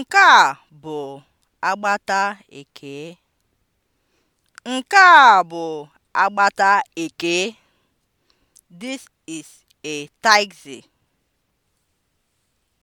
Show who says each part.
Speaker 1: Nke a bụ agbata Ekee. Nke a bụ agbata This is a taxi.